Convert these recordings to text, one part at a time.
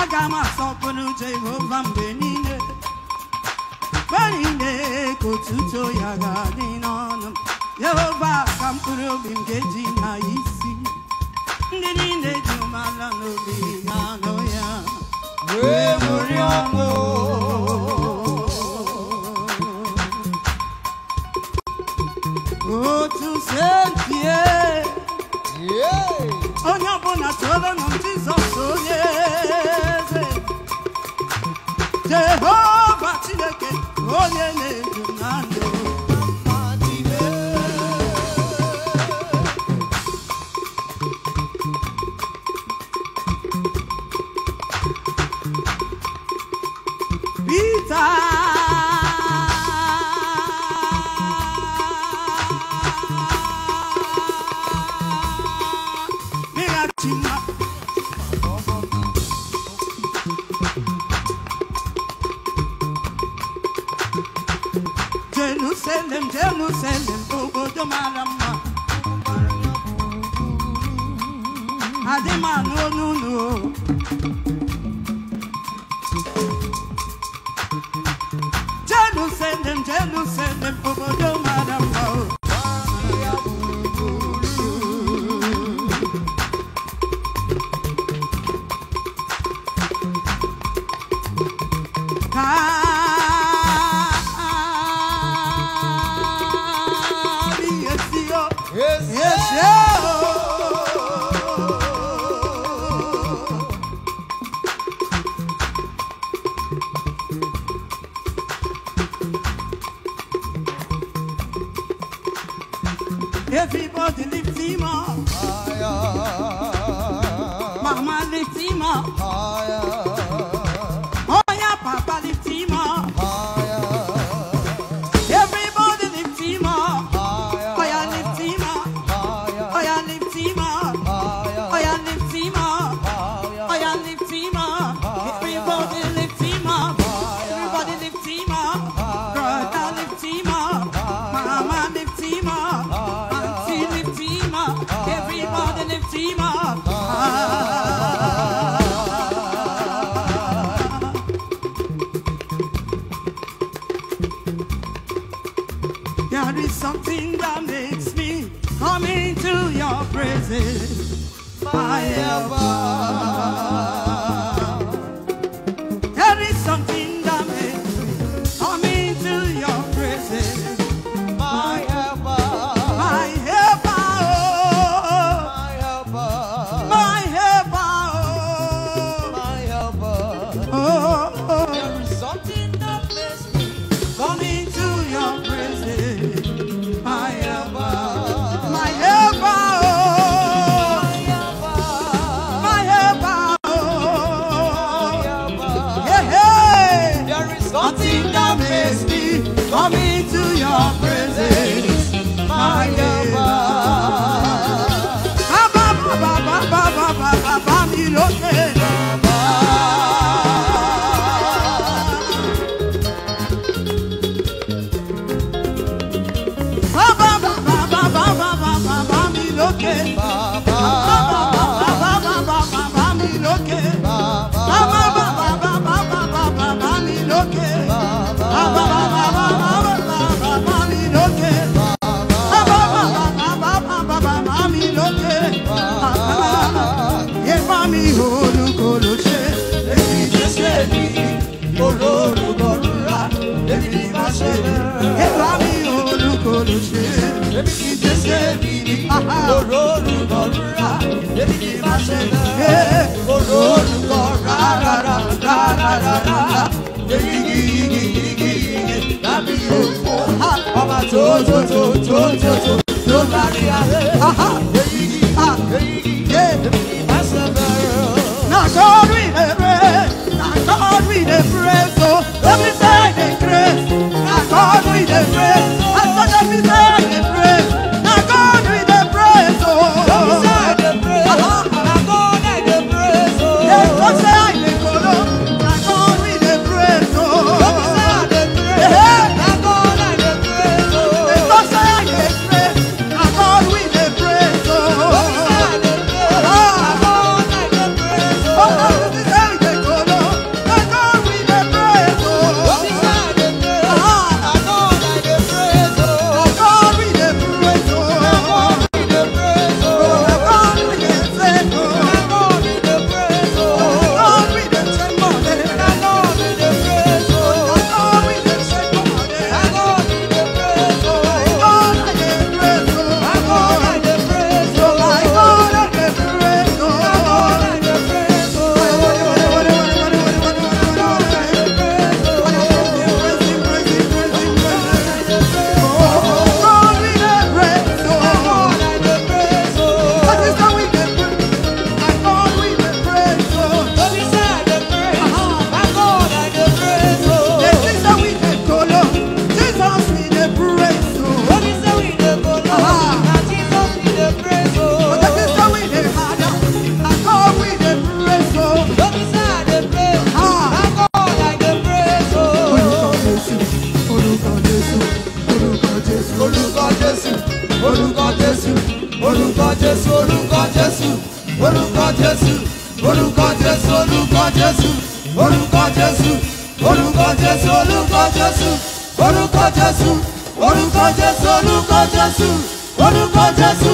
aga m asọpụrụ jehova mgbe niile mgbe niile ka otuto ya ga-adị n'ọnụ jehova ka mkpụrụ obi m ga na isi ndị niile dị umeala n'obi ga-anụ ya ne na selling obodo mara mma n'o everybody lift him up. Fire. God is something that makes me come into your presence forever. Oh ṣe é kóró olùkọ́ rárára rárára yéyíyíyíyíyíyí lábí yòókù ọba tó tó tó tó tó. orúkọ jésù orúkọ jésù olúkọ jésù orúkọ jésù orúkọ jésù olúkọ jésù orúkọ jésù orúkọ jésù olúkọ jésù orúkọ jésù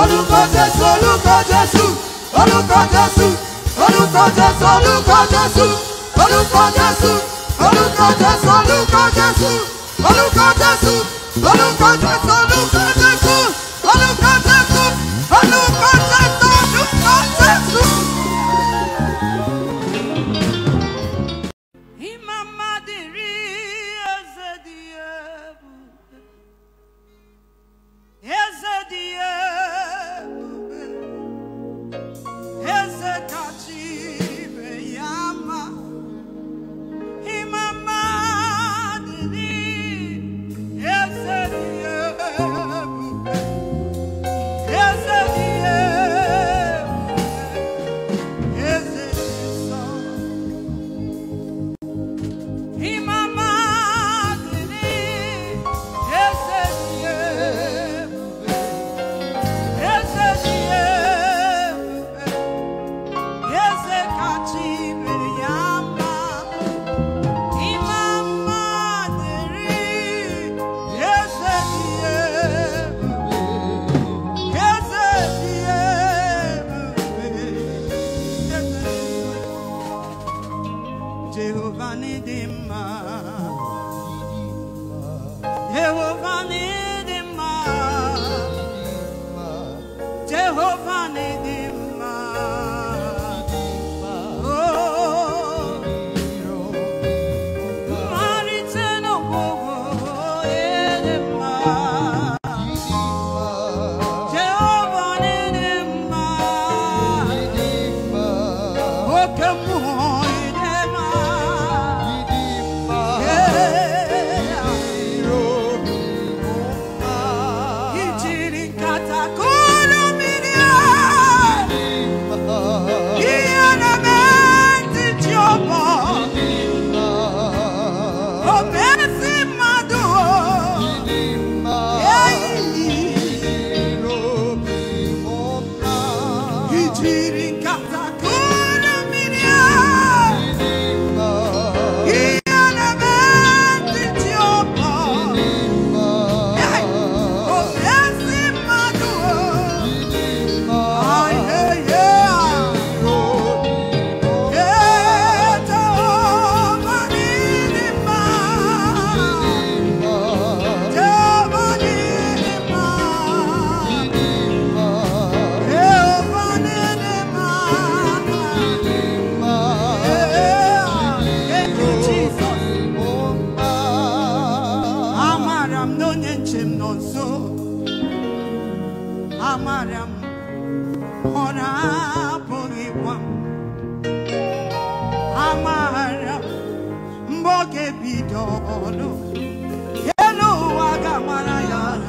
orúkọ jésù olúkọ jésù orúkọ jésù orúkọ jésù olúkọ jésù orúkọ jésù orúkọ jésù olúkọ jésù orúkọ jésù orúkọ jésù olúkọ jésù. will run it. bidolo yelo agamara yana